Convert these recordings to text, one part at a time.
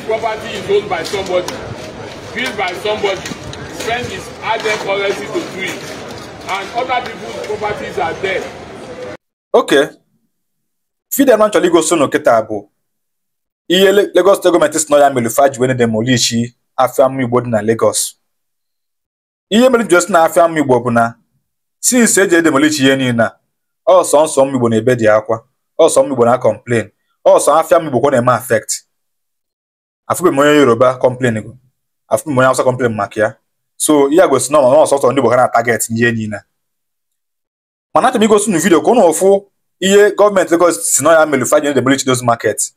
This property is owned by somebody, built by somebody, spend his added currency to do it, and other people's properties are there. Okay. Fidel Nanchọrọ igosi unu kịta bụ ihe Lagos State gọọmenti si na ya mere fa ji wee demolishi afịa mma Igbo dị na Lagos. Ihe mere ji na afia mma Igbo bụ na since eji edemolishi ihe niile a ọsọ nsọ m Igbo na-ebe dị akwa ọsọ m Igbo na complain ọsọ afịa m Igbo kwa na-eme affect afọ m onye yoruba kọmplen go afọ m onye awụsa kọmplen maka ya so ya gosi na ọ nọ sọsọ ndị Buhari na-ataget ihe na. mana achọrọ m igosi unu vidio ka ụnụ ụfụ ihe gọọmenti Lagos si nọ ya mere fa ji demolish those market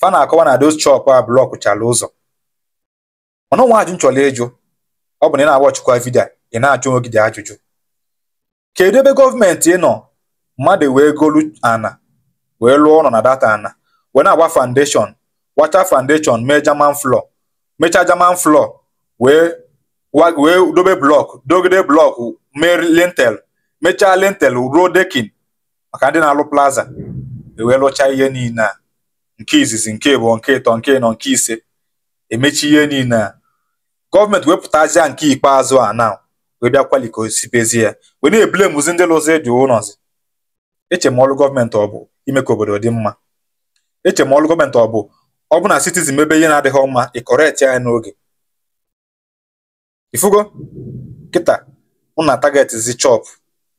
fa na-akọwa na those chop a blọk ụzọ mana nwa ajụ nchọrọ ịjụ ọ bụ na ị na ọchịkwa vidio ị na-ajụ onwe gị dị ajụjụ kedu ebe gọọmenti nọ mmadụ wee golu ana wee lụọ ụlọ na data ana wee na-agba foundation wacha foundation mee German floor mechaa German floor wee wee dobe blọk dogide blọk mee lintel mechaa lintel ruo dekin maka ndị na-alụ plaza ewee lụchaa ihe niile a nke izizi nke ịbụọ nke ịtọ nke ịnọ nke ise emechi ihe niile a gọọmenti wepụtazia nke ikpeazụ a na wee bịa ya wee na ndị lụzi dị ụlọzi eche ọlụ gọọmenti ọ bụ ime ka obodo dị mma eche ma ọlụ gọọmenti ọ bụ ọ bụ na citizen mebe ihe na-adịghị mma ị kọrekt ya n'oge ifugo kịta mụ na targetzi chọp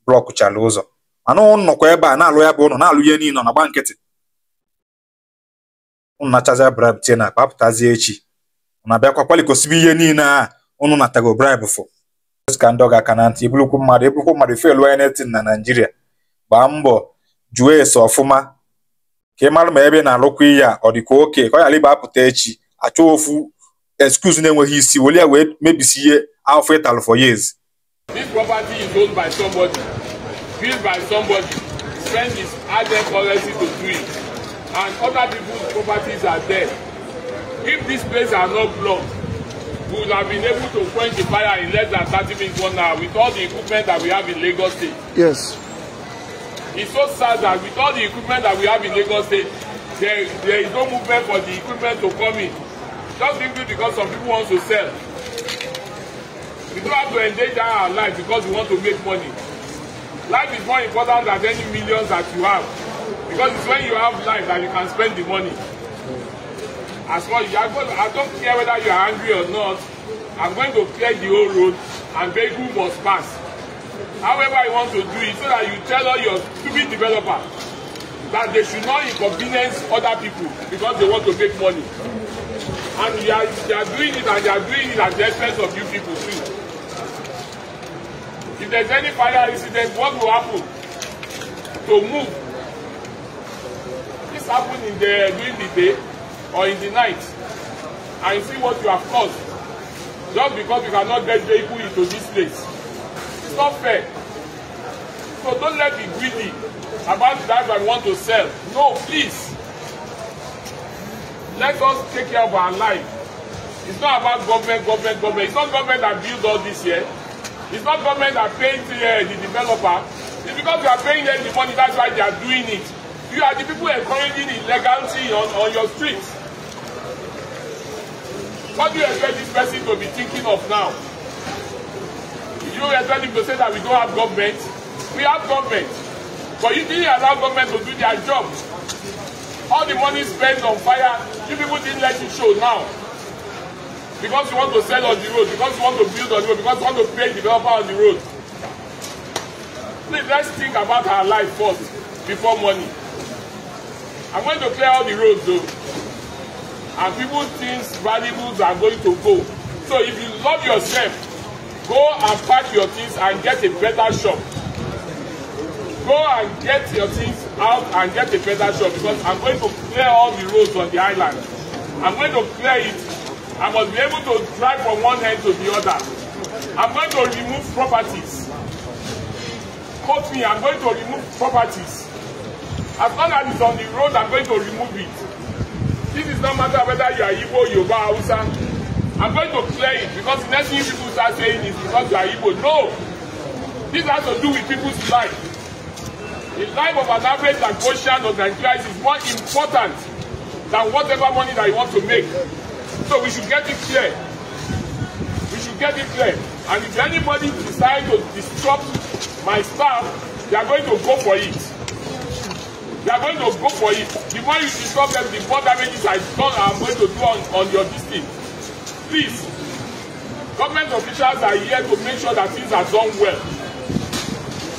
blọkụchala ụzọ anụ nnọkwa ebe a na-alụ ya bụ ụlọ na-alụ ihe niile na gba nkịtị ụnụ na-achazi tie na akpa echi ụnụ abịakwa kwalikosibe ihe niile a ụnụ natago bribe fụ ka ndị ọga aka na ntị iburukwu mmadụ iburukwu mmadụ felụ ya netin na naijiria gbaa mbọ jụọ ese ọfụma ka ị mara ma ebe na-alụkwa ihe a ọ dị ka oke ka ọ ghara ịba echi achọ ofu excuse na-enweghị isi were ya wee mebisi ihe afọ ịtalụ for years This property is owned by somebody, built by somebody. Friend is added policy to do it. And other people's properties are there. If this place are not blocked, we would have been able to quench the fire in less than 30 minutes, one hour, with all the equipment that we have in Lagos State. Yes. It's so sad that with all the equipment that we have in Lagos State, there, there is no movement for the equipment to come in. Just simply because some people want to sell. We don't have to endanger our life because we want to make money. Life is more important than any millions that you have. Because it's when you have life that you can spend the money. As well, you are I don't care whether you are angry or not. I'm going to clear the whole road and vehicle must pass however you want to do it so that you tell all your stupid developers that they should not inconvenience other people because they want to make money and they are they are doing it and they are doing it at the expense of you people too if there's any fire incident what will happen to move this happen in the during the day or in the night and you see what you have caused just because you cannot get vehicle into this place It's not fair. So don't let me greedy about that. I want to sell. No, please. Let us take care of our life. It's not about government, government, government. It's not government that built all this here. It's not government that paid uh, the developer. It's because you are paying them the money, that's why they are doing it. You are the people encouraging illegality on, on your streets. What do you expect this person to be thinking of now? you expect him to say that we don't have government? We have government. But you didn't allow government to do their job. All the money spent on fire, you people didn't let it show now. Because you want to sell on the road, because you want to build on the road, because you want to pay developer on the road. Please, let's think about our life first before money. I'm going to clear all the roads though. And people think valuables are going to go. So if you love yourself, Go and pack your things and get a better shop. Go and get your things out and get a better shop because I'm going to clear all the roads on the island. I'm going to clear it. I must be able to drive from one end to the other. I'm going to remove properties. Quote me, I'm going to remove properties. As long as it's on the road, I'm going to remove it. This is no matter whether you are Igbo, Yoruba, Hausa, I'm going to clear it because the next thing people start saying is because you are evil. No! This has to do with people's life. The life of an average Lagosian or Nigerian is more important than whatever money that you want to make. So we should get it clear. We should get it clear. And if anybody decides to disrupt my staff, they are going to go for it. They are going to go for it. The more you disrupt them, the more damages I done I'm going to do on, on your district. This Government officials are here to make sure that things are done well.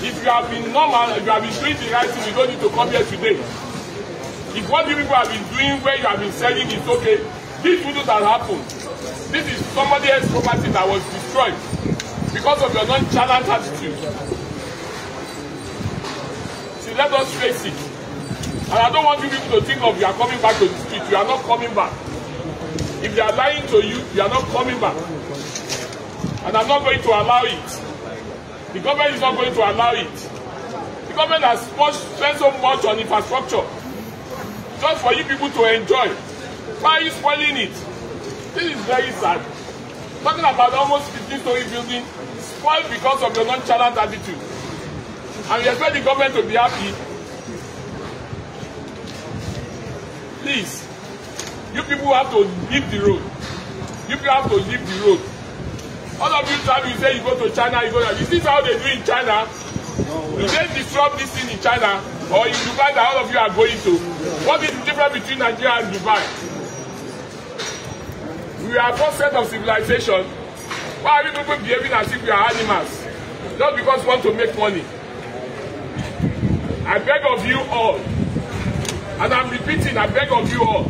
If you have been normal, if you have been doing the right thing, you don't need to come here today. If what you people have been doing where you have been selling is okay, this wouldn't have happened. This is somebody else's property that was destroyed because of your non nonchalant attitude. See, let us face it. And I don't want you people to think of you are coming back to the street. You are not coming back. If they are lying to you, you are not coming back. And I'm not going to allow it. The government is not going to allow it. The government has spent so much on infrastructure just for you people to enjoy. Why are you spoiling it? This is very sad. Talking about almost 15 story building spoiled because of your nonchalant attitude. And you expect the government to be happy. Please. You people have to leave the road. You people have to leave the road. All of you travel, you say you go to China, you go to... Is this how they do in China? you dey disrupt this thing in China or in Dubai that all of you are going to? What is the difference between Nigeria and Dubai? We are first set of civilization. Why are you people behaving as if we are animals? Just because we want to make money. I beg of you all, and I'm repeating, I beg of you all,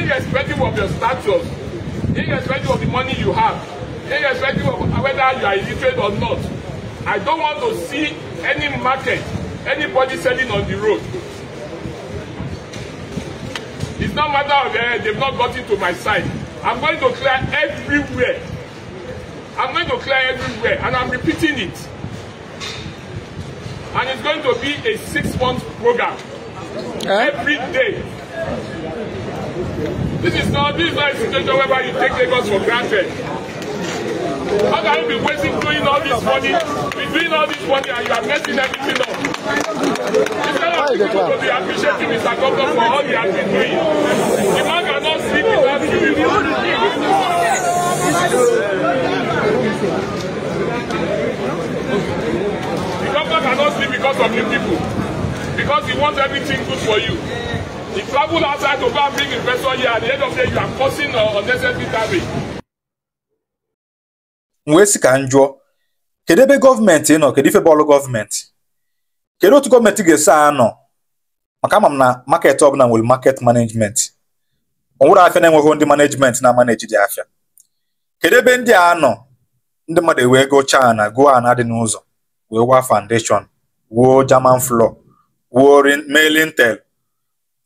irrespective of your status, irrespective of the money you have, irrespective of whether you are illiterate or not. I don't want to see any market, anybody selling on the road. It's not matter of uh, they've not gotten to my side. I'm going to clear everywhere. I'm going to clear everywhere, and I'm repeating it. And it's going to be a six-month program. Eh? Every day, This is not this is not a situation whereby you take Lagos for granted. How can you be wasting doing all this money? We're doing all this money and you are messing everything up. Instead of people to be appreciating Mr. Governor for all he has been doing, the man cannot sleep without giving you The governor cannot sleep because of you people. Because he wants everything good for you. travel outside to go and bring investor here at the end of the day you are causing uh, unnecessary damage. m wee sị ka njụọ jụọ kedu ebe gọọmenti nọ kedu ife bọọlụ gọọmenti kedu otu gọọmenti ga-esi anọ maka ama m na market ọbụla nwere market management onwere afịa na-enweghị ndị management na maneji dị afịa kedu ebe ndị a nọ ndị mmadụ ewee gochaa na gụọ na dị n'ụzọ wee gwa foundation wuo German floor wuo mailing tel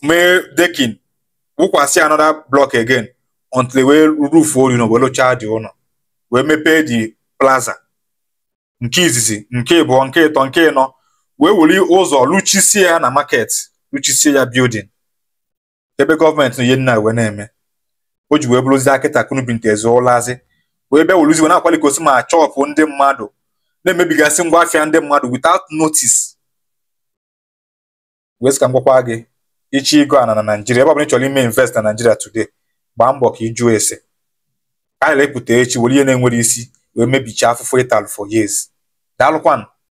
mee dekin wụkwasị another blọk again until wee rufuo elu wee lụchaa dị ụlọ wee mepee dị plaza nke izizi nke ịbụọ nke ịtọ nke ịnọ wee weli ụzọ luchisie ya na market luchisie ya bildin ebe gọọmenti ihe nna wee na-eme o ji wee bụrụzi akịta kunubinte zụọlazi wee bịa weluzi wee na-akwalikosi ma chọpụ ndị mmadụ na-emebigasị ngwa afịa ndị mmadụ witout notice wee sị ka gị ichi ego ana na nigeria ebe ọ bụla ị chọrọ ime invest na nigeria today gbaa mbọ ka ese a na echi were ihe na-enwere isi wee mebicha afụfụ ital for years daalụkwanụ